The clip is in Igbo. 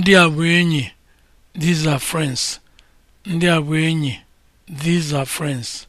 Ndị a bụ enyi. These are friends. enyi. These are friends.